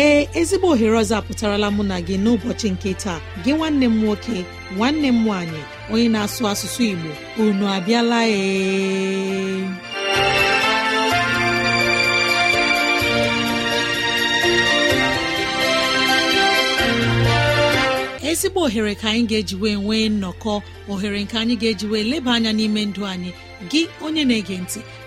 ee ezigbo ohere ọzọ apụtarala mụ na gị n'ụbọchị nke taa gị nwanne m nwoke nwanne m nwanyị, onye na-asụ asụsụ Igbo unu abịala ee ezigbo ohere ka anyị ga-ejiwe nwee nnọkọ ohere nke anyị ga-ejiwe eji leba anya n'ime ndụ anyị gị onye na-ege ntị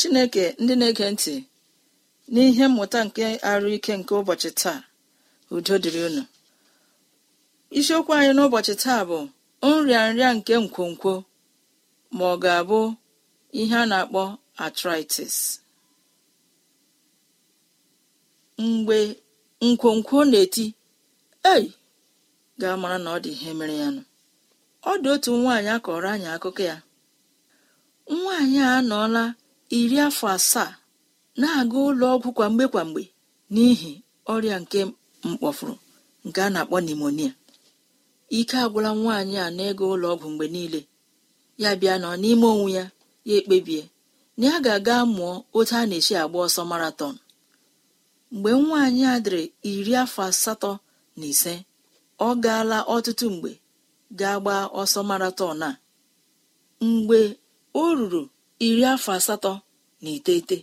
chineke ndị na-ege ntị n'ihe mmụta nke arụ ike nke ụbọchị taa udo dịrị unu isiokwu anyị n'ụbọchị taa bụ nrịa nrịa nke nkwonkwo ma ọ ga-abụ ihe a na-akpọ arthritis mgbe nkwonkwo na-eti ei ga-amara na ọ dị ihe mere ya nụ ọ dị otu nwaanyị akọrọ anyị akụkọ ya nwaanyị a anọọla iri afọ asaa na-aga ụlọ ọgwụ kwa mgbe kwa mgbe n'ihi ọrịa nke mkpọfuru nke a na-akpọ nimonia ike agwụla nwaanyị a na-ego ụlọ ọgwụ mgbe niile ya bịa nọ n'ime onwe ya ya ekpebie na ya ga-aga mụọ otu a na echi agba ọsọ maraton mgbe nwaanyị a dịrị iri afọ asatọ na ise ọ gaala ọtụtụ mgbe gaa gbaa ọsọ maraton a mgbe o ruru iri afọ asatọ na iteghete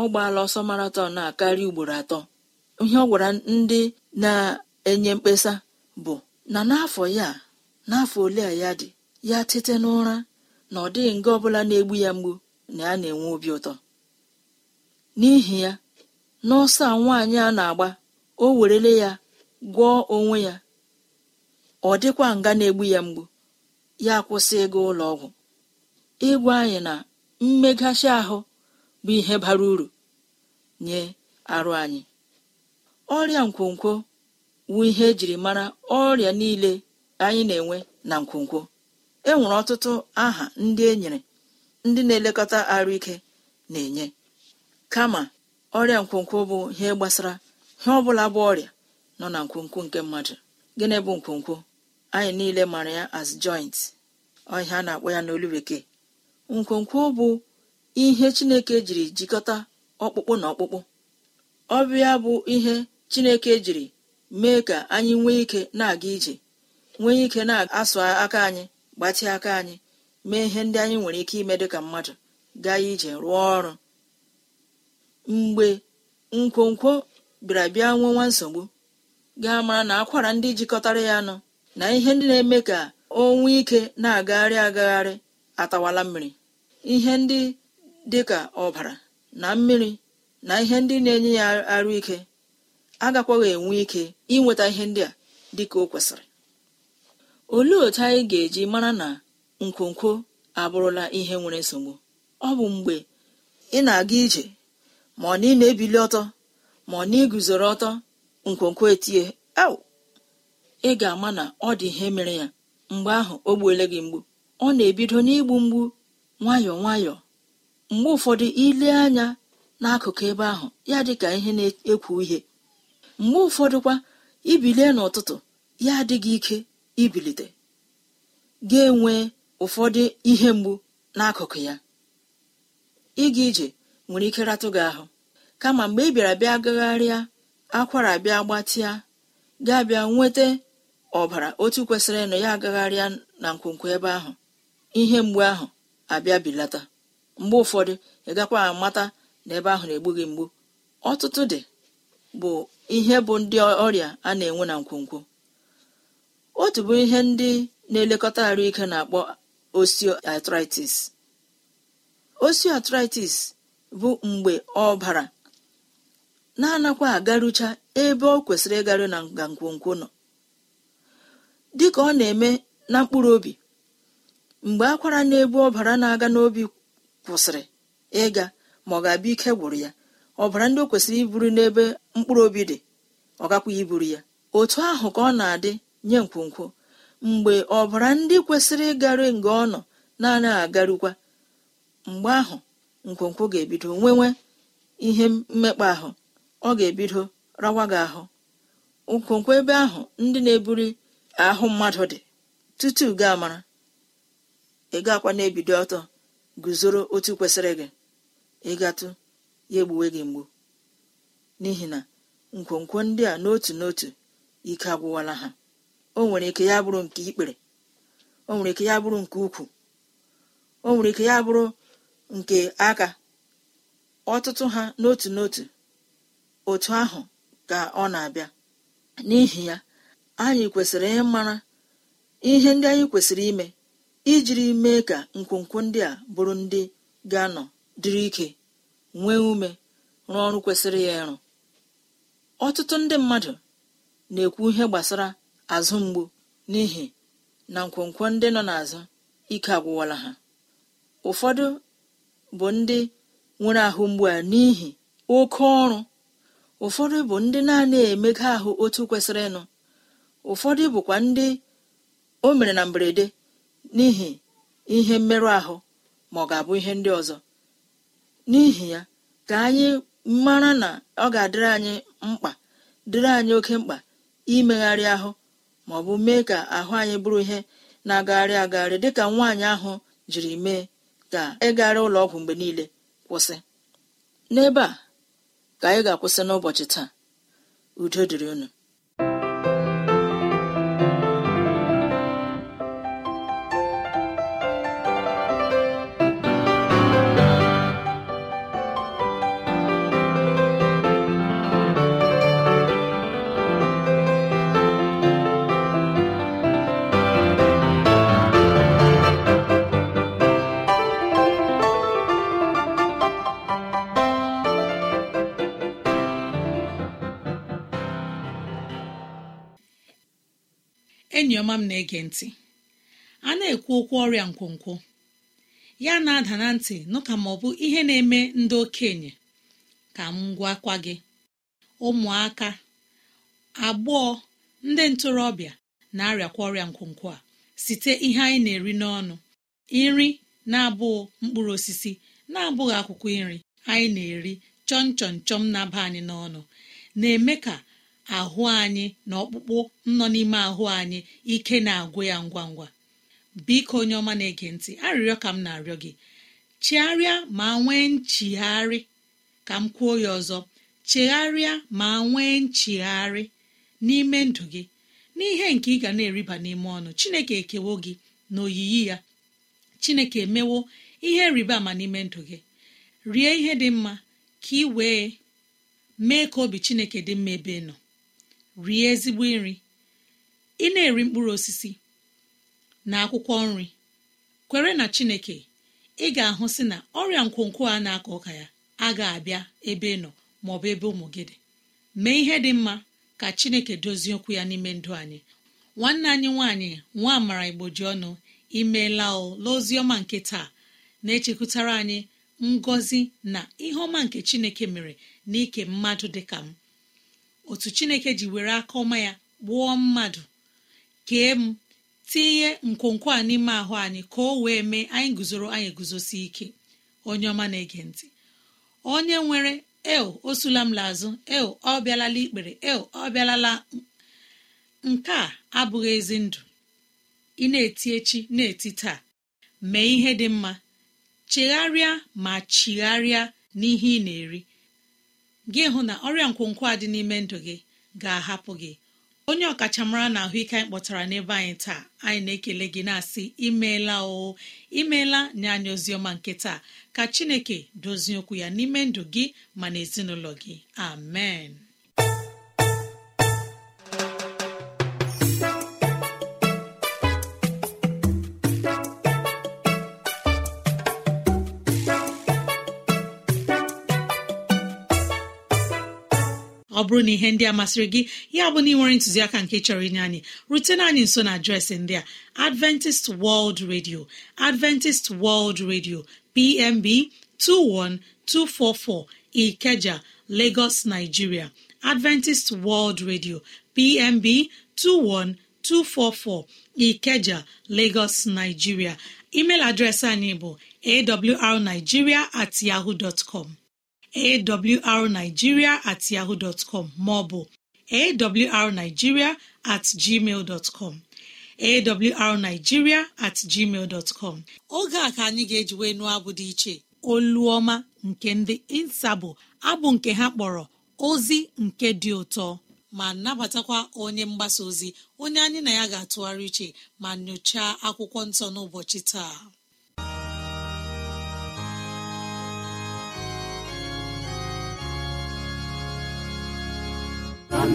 ọ gbaala ọsọ maraton a karịa ugboro atọ ihe ọ gwara ndị na-enye mkpesa bụ na n'afọ ya n'afọ ole a ya dị ya tete n'ụra na ọ dịghị nga ọbụla na-egbu ya mgbu na ya na-enwe obi ụtọ n'ihi ya n'ọsọ a nwaanyị a na-agba o werele ya gwọọ onwe ya ọ dịkwa nga na-egbu ya mgbu ya kwụsị ịga ụlọ ọgwụ ịgwa anyị na mmeghachi ahụ bụ ihe bara uru nye arụ anyị ọrịa nkwonkwo bụ ihe ejiri mara ọrịa niile anyị na-enwe na nkwonkwo e nwere ọtụtụ aha ndị e nyere ndị na-elekọta arụ ike na-enye kama ọrịa nkwonkwo bụ ihe gbasara ihe ọbụla bụ ọrịa nọ na nkwonkwo nke mmadụ gịnị bụ nkwonkwo anyị niile mara ya as joint ọhịa a na-akpọ ya n'olu bekee nkwonkwo bụ ihe chineke jiri jikọta ọkpụkpụ na ọkpụkpụ ọbịa bụ ihe chineke jiri mee ka anyị nwee ike na-aga ije nwee ike na-asụ aka anyị gbatị aka anyị mee ihe ndị anyị nwere ike ime dịka mmadụ gaa ije rụọ ọrụ mgbe nkwonkwo bịara bịa nwewa nsogbu gaa mara na akwara ndị jikọtara ya nọ na ihe ndị na-eme ka o nwee ike na-agagharị agagharị atawala mmiri ihe ndị dị ka ọbara na mmiri na ihe ndị na-enye ya arụ ike agakwaghị enwe ike inweta ihe ndị a dịka o kwesịrị olee otu anyị ga-eji mara na nkwonkwo abụrụla ihe nwere nsogbu ọ bụ mgbe ị na-aga ije ma ọ na ị na-ebili ọtọ ma ọ na iguzoro ọtọ nkwonkwo etie au ị ga-ama na ọ dị ihe mere ya mgbe ahụ o gbuole gị mgbu ọ na-ebido n'igbu mgbu nwayọọ nwayọọ mgbe ụfọdụ ile anya n'akụkụ ebe ahụ ya dị ka ihe na-ekwu ihe mgbe ụfọdụkwa ibilie n'ụtụtụ ya adịghị ike ibilite ga-enwe ụfọdụ ihe mgbu n'akụkụ ya ịga ije nwere ike ratụ gị ahụ kama mgbe ị bịara bịa gagharịa akwara bịa gbatịa gaa bịa nweta ọbara otu kwesịrị ịnọ ya agagharịa na nkwonkwo ebe ahụ ihe mgbu ahụ abịa bilata mgbe ụfọdụ ị gakwa amata na ebe ahụ na-egbu gị mgbu ọtụtụ dị bụ ihe bụ ndị ọrịa a na-enwe na nkwonkwo otu bụ ihe ndị na-elekọta ike na-akpọ osteoarthritis osteoarthritis bụ mgbe ọbara na-anakwa agarucha ebe ọ kwesịrị ịgaru na nga nkwonkwo nọ dịka ọ na-eme na mkpụrụ obi mgbe akwara na-ebu ọbara na-aga n'obi kwụsịrị ịga ma ọ ga-abịa ike gwụrụ ya ọbara ndị o kwesịrị iburu n'ebe mkpụrụ obi dị ọ gakwa iburu ya otu ahụ ka ọ na-adị nye nkwonkwo mgbe ọbara ndị kwesịrị ịgarị nga ọ nọ na-anaghị agarukwa mgbe ahụ nkwonkwo ga-ebido nwewe ihe mmekpa ahụ ọ ga-ebido rawa gị ahụ nkwonkwo ebe ahụ ndị na-eburi ahụ mmadụ dị tutu gaa mara ị akwa na-ebido ọtọ guzoro otu kwesịrị gị ịgatụ ya egbuwe gị mgbu n'ihi na nkwonkwo ndị a n'otu n'otu ike agwụwala ha o nwere ike ya bụrụ nke ikpere o nwere ike ya bụrụ nke ukwu o nwere ike ya bụrụ nke aka ọtụtụ ha n'otu n'otu otu ahụ ka ọ na-abịa n'ihi ya anyị kwesịrị ịmara ihe ndị anyị kwesịrị ime ijiri mee ka nkwonkwo ndị a bụrụ ndị ga-anọ dịrị ike nwee ume rụọ ọrụ kwesịrị ya ịrụ ọtụtụ ndị mmadụ na-ekwu ihe gbasara azụ mgbu n'ihi na nkwonkwo ndị nọ n'azụ ike agwụwala ha ụfọdụ bụ ndị nwere ahụ mgbu a n'ihi oke ọrụ ụfọdụ bụ ndị na emega ahụ otu kwesịrị ịnụ ụfọdụ bụkwa ndị o mere na mberede n'ihi ihe mmerụ ahụ ma ọ ga-abụ ihe ndị ọzọ n'ihi ya ka anyị mara na ọ ga-adịrị anyị mkpa dịrị anyị oke mkpa imegharị ahụ ma ọ bụ mee ka ahụ anyị bụrụ ihe na-agagharị agagharị dịka nwaanyị ahụ jiri mee ka ịgagharị e ụlọ ọgwụ mgbe niile kwụsị n'ebe a ka anyị ga-akwụsị n'ụbọchị taa udo dịrị unu enyi ọma m na-ege ntị a na-ekwu okwu ọrịa nkwonkwo ya na-ada na ntị nụka ma ọ bụ ihe na-eme ndị okenye ka m gwakwa gị ụmụaka agbọọ ndị ntorobịa na-arịakwa ọrịa nkwonkwo a site ihe anyị na-eri n'ọnụ nri na-abụghị mkpụrụ osisi na-abụghị akwụkwọ nri anyị na-eri chọm chọm chọm na-aba anyị n'ọnụ na-eme ka ahụ anyị na ọkpụkpụ nọ n'ime ahụ anyị ike na-agwụ ya ngwa ngwa biko onye ọma na-ege ntị arịrịọ ka m na-arịọ gị chegharịa ma nwee nchigharị ka m kwuo ya ọzọ chegharịa ma nwee nchigharị n'ime ndụ gị n'ihe nke ị ga na-eriba n'ime ọnụ chineke ekewo gị na oyiyi ya chineke emewo ihe rịba ama n'ime ndụ gị rie ihe dị mma ka ị wee mee ka obi chineke dị mma ebe nọ rie ezigbo nri ị na-eri mkpụrụ osisi na akwụkwọ nri kwere na chineke ị ga-ahụ si na ọrịa nkwonkwo a na-akọ ọka ya agaghị abịa ebe ị nọ maọbụ ebe ụmụ gị dị mee ihe dị mma ka chineke dozie okwu ya n'ime ndụ anyị nwanne anyị nwaanyị nwa amara ji ọnụ imeela ọma nke taa na-echekwutara anyị ngọzi na ihe ọma nke chineke mere n'ike mmadụ dị ka m otu chineke ji were aka ọma ya gbuo mmadụ kee m tinye nkwonkwo a n'ime ahụ anyị ka o wee mee anyị guzoro anyị guzosi ike onye ọma na-ege ntị onye nwere eo o sula m lazụ el ọ bịalala ikpere eo ọ bịalala nke a abụghị ezi ndụ ị na-eti echi na-eti taa mee ihe dị mma chegharịa ma chigharịa n'ihe ị na-eri gị hụ na ọrịa nkwonkwo a dị n'ime ndụ gị ga-ahapụ gị onye ọkachamara na ahụike anyị kpọtara n'ebe anyị taa anyị na-ekele gị na-asị imeela o imeela nye anyị oziọma nke taa ka chineke dozie okwu ya n'ime ndụ gị ma na ezinụlọ gị amen ọ bụrụ na ihe ndị a masịrị gị ya bụ na ị nwere ntụziaka nke chọrọ inye anyị rutena anyị nso na adreesị ndị a adventist world radio adventist world radio pmb 21244 ikeja lagos nigeria adventist world radio pmb 21244 ikeja lagos nigeria email adreesị anyị bụ awrnigeria at yahoo dot com awrnigiria at ọ bụ maọbụ awrnigiria at gmail oge a ka anyị ga-ejiwe nụọ abụ dị iche oluọma nke ndị insa abụ nke ha kpọrọ ozi nke dị ụtọ ma nabatakwa onye mgbasa ozi onye anyị na ya ga-atụgharị uche ma nyochaa akwụkwọ nsọ n'ụbọchị taa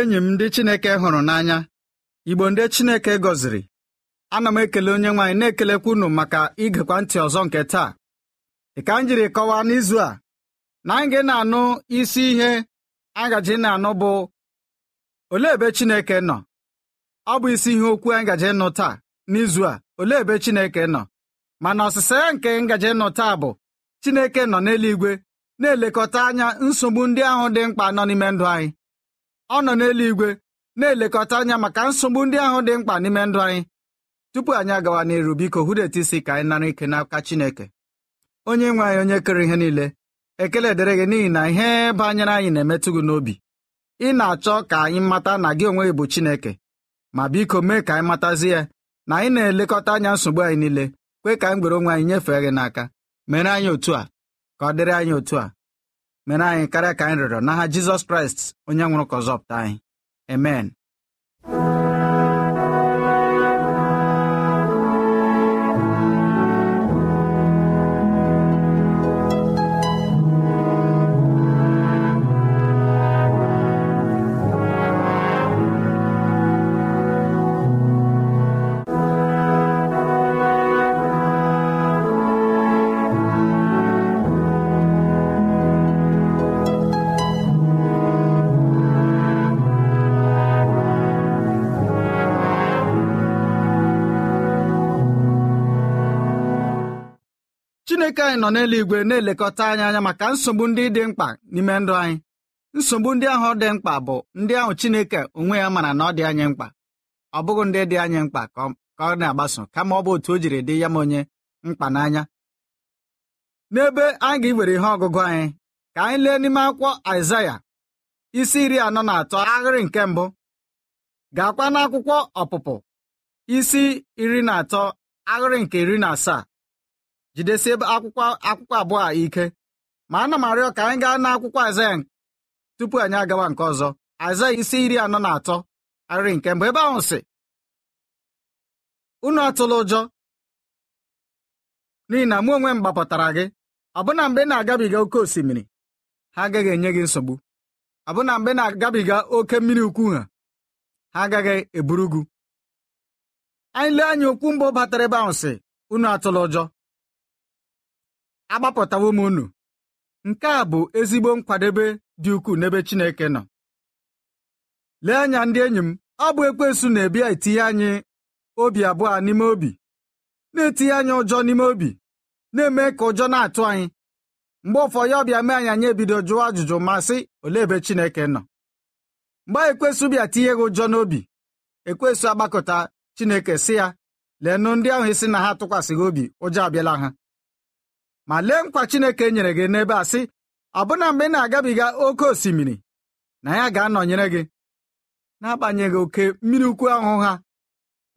enyi m ndị Chineke hụrụ n'anya Igbo ndị Chineke gọziri ana m ekele onye nwaanyị na-ekelekwa unu maka igekwa ntị ọzọ nke taa dị ka m jiri kọwaa n'izu a na anyị ga na-anụ isi ihe agaji na-anụ bụ olee ebe Chineke nọ ọ bụ isi ihe okwu anyị gaji nụ taa n'izu a olee ebe Chineke nọ mana ọsịsa ya nke ngaji nụ taa bụ Chineke nọ n'eluigwe na-elekọta anya nsogbu ndị ahụ dị mkpa nọ n'ime ndụ anyị ọ nọ n'eluigwe na-elekọta anya maka nsogbu ndị ahụ dị mkpa n'ime ndụ anyị tupu anyị agawa n'iru biko hụdeta isi ka anyị nara ike n'aka Chineke onye nwe anyị onye kere ihe niile ekele dịrị gị n'ihi na ihe banyere anyị na-emetụ gị n'obi ị na-achọ ka anyị mata na gị onwe gị bụ Chineke ma biko mee ka anyị matazi ya na anyị na-elekọta anya nsogbu anyị niile kwe ka anyị gbere onwe anyị nyefee gị n'aka mere anyị otu a ka ọ dịrị anyị otu a mere anyị karịa ka anyị rịọrọ n'aha jizọs kraịst onye nwụrụ ka pụta anyị amen chineke anyị nọ n'eluigwe na-elekọta anyị anya maka nsogbu ndị dị mkpa n'ime ndụ anyị nsogbu ndị ahụ dị mkpa bụ ndị ahụ chineke onwe ya mara na ọ dị anyị mkpa ọ bụghị ndị dị anyị mkpa ka ọ na-agbaso kama ọ bụ otu o jiri dị ya ma onye mkpa n'anya n'ebe anyị ga-ewere ihe ọgụgụ anyị ka anyị lee n'ime akwụkwọ Aịzaya isi iri anọ na atọ ahịrị nke mbụ gaakwa n'akwụkwọ ọpụpụ isi iri na atọ ahịrị nke iri na asaa jidesie akwụkwọ akwụkwọ abụọ a ike ma ana m arịọ ka anyị gaa n'akwụkwọ Aịzaya tupu anyị agawa nke ọzọ Aịzaya isi iri anọ na atọ arịrị nke mbụ ebe ahụ sị unu atụla ụjọ n'ihi na mụ onwe m gbapụtara gị ọbụna mgbe na-agabiga oke osimiri ha agaghị enye gị nsogbu ọbụna mgbe na-agabiga oke mmiri ukwu ha ha agaghị eburu anyị lee anya okwu mbụ batara ebe ahụ sị unu atụla ụjọ agbapụtawo m unu nke a bụ ezigbo nkwadebe dị ukwuu n'ebe Chineke nọ lee anya ndị enyi m ọ bụ Ekwesụ na ebia etinye anyị obi abụọ n'ime obi na-etinye anyị ụjọ n'ime obi na-eme ka ụjọ na-atụ anyị mgbe ụfọdụ ya ọbịa mee anyị anyị ebido jụọ ajụjụ ma sị olee ebe Chineke nọ mgbe Ekwesụ ekwensu bịa tinye gị ụjọ n'obi Ekwesụ agbakọta Chineke sị ya nụ ndị ahụ isi e na ha tụkwasịghị obi ụjọ abịala ha ma lee nkwa Chineke nyere gị n'ebe a sị ọbụna mgbe ị na-agabiga oke osimiri na ya ga-anọnyere gị n'agbanyeghị oke mmiri ukwu ahụ ha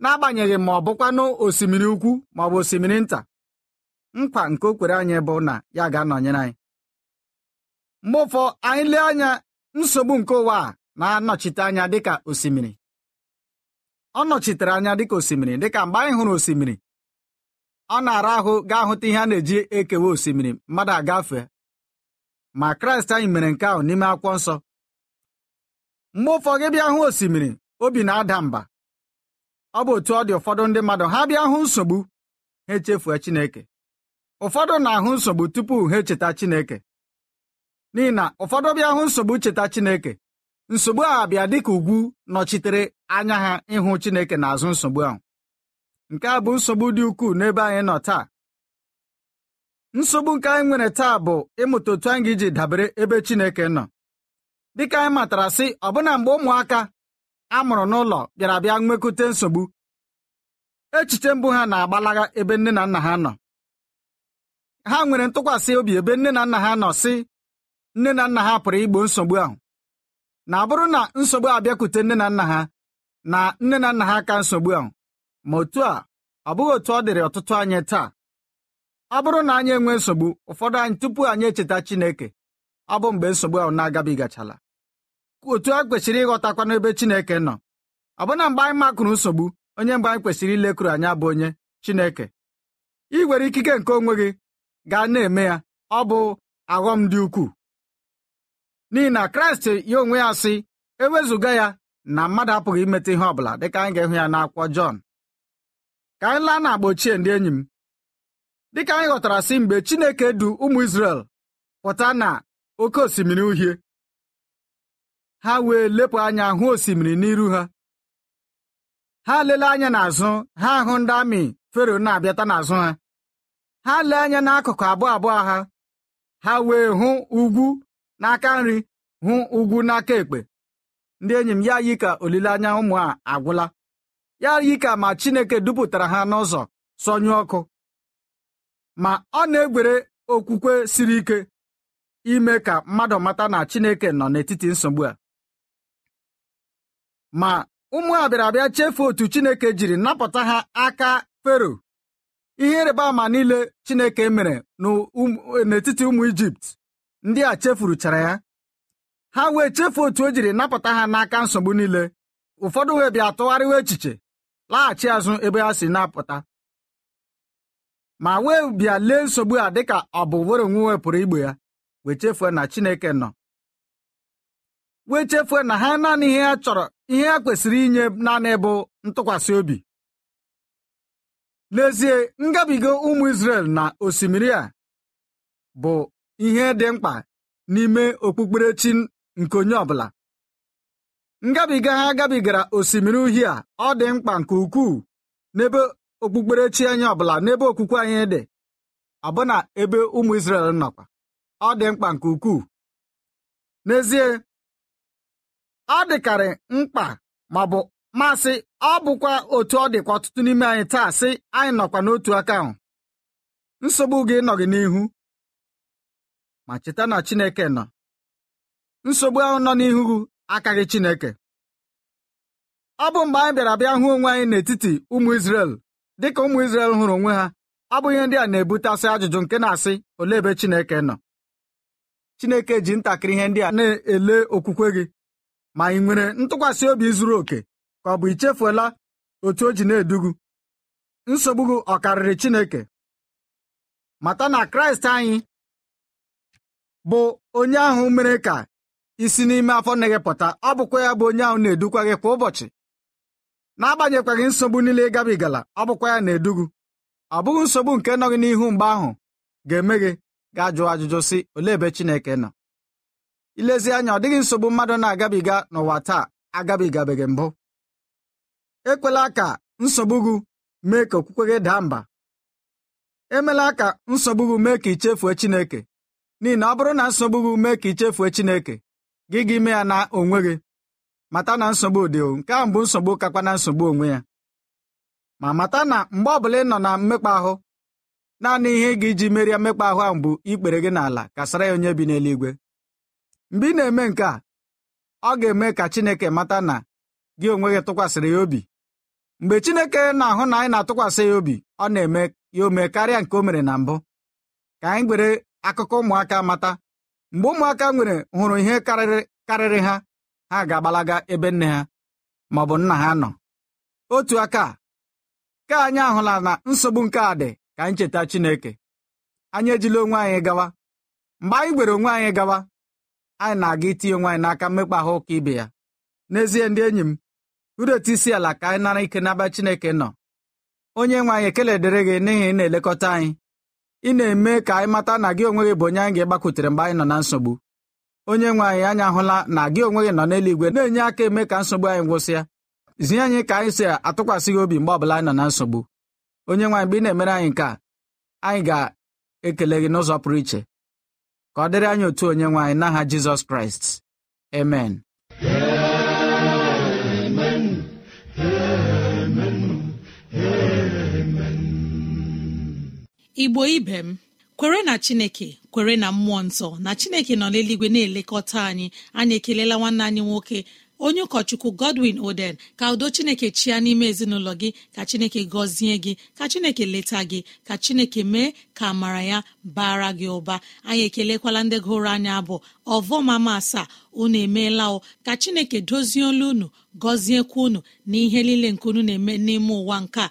n'agbanyeghị ma ọ bụkwanụ osimiri ukwu ma ọ bụ osimiri nta nkwa nke o kwere anyị bụ na ya ga-anọnyere anyị mgbe ụfọ anyị lee anya nsogbu nke ụwa a na-anọchite anya dịka osimiri ọ nọchitere anya dịka osimiri dịka mgbe anyị hụrụ osimiri ọ na-ara ahụ gaa hụta ihe a na-eji ekewe osimiri mmadụ agafe ma kraịst anyị mere nke ahụ n'ime akwụkwọ nsọ mgbe ụfọdụ bịa hụ osimiri obi na-ada mba ọ bụ otu ọ dị ụfọdụ ndị mmadụ ha bịa hụ nsogbu ha echefue Chineke ụfọdụ na-ahụ nsogbu tupu ha echeta Chineke n'ihi na ụfọdụ bịa hụ nsogbu cheta Chineke nsogbu a bịa dịka ugwu nọchitere anya ha ịhụ Chineke n'azụ nsogbu ahụ nke a bụ nsogbu dị ukwuu n'ebe anyị nọ taa nsogbu nke anyị nwere taa bụ ịmụta otu anyị iji dabere ebe Chineke nọ dịka anyị matara sị ọbụna mgbe ụmụaka a mụrụ n'ụlọ bịara bịa nwekute nsogbu echiche mbụ ha na-agbalaga ebe nne na nna ha nọ ha nwere ntụkwasị obi ebe nne na nna ha nọ sị nne na nna ha pụrụ igbo nsogbu ahụ na abụrụ na nsogbu abịakwute nne na nna ha na nne na nna ha ka nsogbu ahụ ma otu a ọ bụghị otu ọ dịrị ọtụtụ anyị taa ọ bụrụ na anyị enwee nsogbu ụfọdụ anyị tupu anyị echeta Chineke ọ bụ mgbe nsogbu ahụ na agabigachala otu a kwesịrị ịghọtakwa n'ebe Chineke nọ ọbụna mgbe anyị makụrụ nsogbu onye mgbe anyị kwesịrị ilekwuru anya bụ onye Chineke ị nwere ikike nke onwe gị gaa na-eme ya ọ bụ aghọm dị ukwuu n'ihi na Kraịst ya onwe ya sị ewezuga ya na mmadụ apụghị imeta ihe ọ bụla dịka anyị ga-ịhụ ya n'akwụkwọ Jọn ka anyị laa n'agba ochie ndị enyi m dịka anyị ghọtara si mgbe Chineke du ụmụ Izrel pụta na oke osimiri uhie ha wee lepụ anya hụ osimiri n'iru ha ha lele anya n'azụ ha hụ ndị amị Fero na-abịata n'azụ ha ha lee anya n'akụkụ abụọ abụọ ha ha wee hụ ugwu n'aka nri hụ ugwu n'aka ekpe ndị enyi m ya yi ka olileanya ụmụ a agwụla ya yi ma Chineke dupụtara ha n'ụzọ sọnyụ ọkụ ma ọ na-egwere okwukwe siri ike ime ka mmadụ mata na Chineke nọ n'etiti nsogbu a ma ụmụ abịa chefuo otu Chineke jiri napụta ha aka Fero ihe ịrịba ama niile Chineke mere n'etiti ụmụ Ijipt ndị a chefuruchara ya ha wee chefuo otu o jiri napụta ha n'aka nsogbu niile ụfọdụ wee bịa tụgharịwa echiche laghachi azụ ebe ha si na-apụta ma wee bịa lee nsogbu a dịka ọ bụ were onwe pụrụ igbe ya wee chefue na Chineke nọ wee chefue na ha naanị ihe ha chọrọ ihe ha kwesịrị inye naanị bụ ntụkwasị obi n'ezie ngabiga ụmụ Izrel na osimiri a bụ ihe dị mkpa n'ime okpukperechi nke onye ọbụla ngabiga ha gabigara osimiri uhie a ọ dị mkpa nke ukwuu n'ebe okpukperechi anyị ọbụla n'ebe okwukwe anyị dị ọbụna ebe ụmụ Izrel nọkwa ọ dị mkpa nke ukwuu n'ezie ọ dịkarị mkpa ma bụ masị ọ bụkwa otu ọ dịkwa ọtụtụ n'ime anyị taa sị anyị nọkwa n'otu aka ahụ nsogbu gị nọ n'ihu ma cheta na Chineke nọ nsogbu ahụ nọ n'ihu gị Chineke ọ bụ mgbe anyị bịara bịa hụ onwe anyị n'etiti ụmụ Izrel dịka ụmụ Izrel hụrụ onwe ha ọ bụ ihe ndị a na-ebutasị ajụjụ nke na-asị olee ebe Chineke nọ Chineke ji ntakịrị ihe ndị a na-ele okwukwe gị ma ị nwere ntụkwasị obi zuru oke ka ọ bụ ichefuola otu o ji na-edugu nsogbu gị ọ karịrị Chineke mata na Kraịst anyị bụ onye ahụ mere ka isi n'ime afọ na gị pụta ọ bụkwa ya bụ onye ahụ na-edukwa gị kwa ụbọchị n'agbanyekwaghị nsogbu niile ịgabigala, gabigala ọ bụkwa ya na-edugu ọ bụghị nsogbu nke nọghị n'ihu mgbe ahụ ga-eme gị ga-ajụ ajụjụ sị olee ebe Chineke nọ ilezi anya ọ dịghị nsogbu mmadụ na-agabiga n'ụwa taa agabigabeghị mbụ ekwela ka nsogbu gị mee ka okwukwe gị daa mba emela ka nsogbu gị mee ka ichefue Chineke n'ihi na ọ bụrụ na nsogbu gị mee ka ichefue Chineke gị gị ime ya na onwe gị mata na nsogbu dị nke a bụ nsogbu kakwa na nsogbu onwe ya ma mata na mgbe ọbụla ị nọ na mmekpa ahụ naanị ihe ị ga iji merie mmekpa ahụ ahụ bụ ikpere gị n'ala kasara ya onye bi n'eluigwe mgbe ị na-eme nke a ọ ga-eme ka Chineke mata na gị onwe gị tụkwasịrị ya obi mgbe Chineke na-ahụ na anyị na-atụkwasị ya obi ọ na-eme ya ome karịa nke o mere na mbụ ka anyị gwere akụkọ ụmụaka mata mgbe ụmụaka nwere hụrụ ihe karịrị ha ha ga-agbalaga ebe nne ha ma ọ bụ nna ha nọ otu aka ka anyị ahụla na nsogbu nke a dị ka anyị cheta Chineke anyị ejila onwe anyị gawa mgbe anyị gwere onwe anyị gawa anyị na-aga itinye onwe anyị n'aka mmekpa ahụ ụka ibe ya n'ezie ndị enyi m uru etu isi ala ka anyị nara ike n'aba Chineke nọ onye nwe anyị ekele dịrị gị n'ihi ị na-elekọta anyị ị na-eme ka anyị mata na gị onwe gị bụ onye anyị ga-agbakwutere mgbe anyị nọ na nsogbu onye nwe anyị anyị ahụla na gị onwe gị nọ n'eluigwe na-enye aka eme ka nsogbu anyị gwụsịa zie anyị ka anyị si atụkwasị gị obi mgbe ọbụla anyị nọ na nsogbu onye nwe mgbe ị na-emere anyị nke a anyị ga-ekele gị n'ụzọ pụrụ iche ka ọ dịrị anyị otu onye nwe anyị n'aha Jizọs Kraịst amen Amen. igbo ibe m kwere na chineke kwere na mmụọ nsọ na chineke nọ n'eluigwe na-elekọta anyị anyị ekelela nwanne anyị nwoke onye ụkọchukwu godwin oden ka udo chineke chia n'ime ezinụlọ gị ka chineke gọzie gị ka chineke leta gị ka chineke mee ka amara ya bara gị ụba anyị ekelekwala ndị gụrụ anyị abụ ọvọmama asaa unu emeela o ka chineke dozie olu unu gọziekwa unu na ihe niile nke unu na-eme n'ime ụwa nke a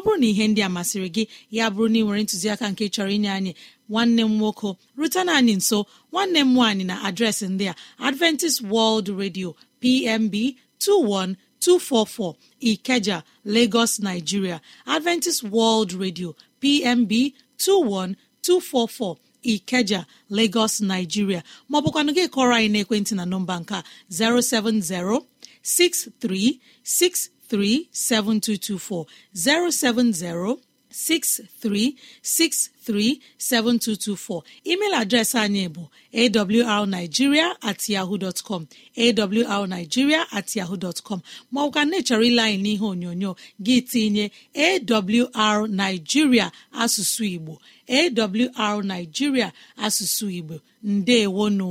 ọ bụrụ na ihe ndị a masịrị gị ya bụrụ na ị nwere ntụziaka nke chọrọ inye anyị nwanne m nwoke rutena anyị nso nwanne m nwaanyị na adreesị ndị a adventist world radio pmb 21244 ikeja lagos nigeria adventist world radio pmb 21244 ikeja lagos nigeria maọbụkwanụ gị kọrọ anyị n'ekwentị na nọmba nka 070 6363 637224 070 email adreesị anyị bụ awrnigeria atyaho yahoo dot com awrnigeria at yahoo dot com maọbụka ile anyị n'ihe onyonyo gị tinye awrnigeria asụsụ Igbo awrnigeria asụsụ Igbo ndewonu